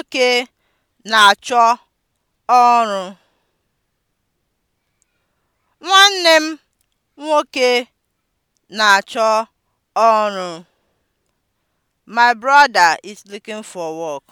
nwoke na-achọ ọrụ. Nwanne m nwoke na-achọ ọrụ. My brother is looking for work.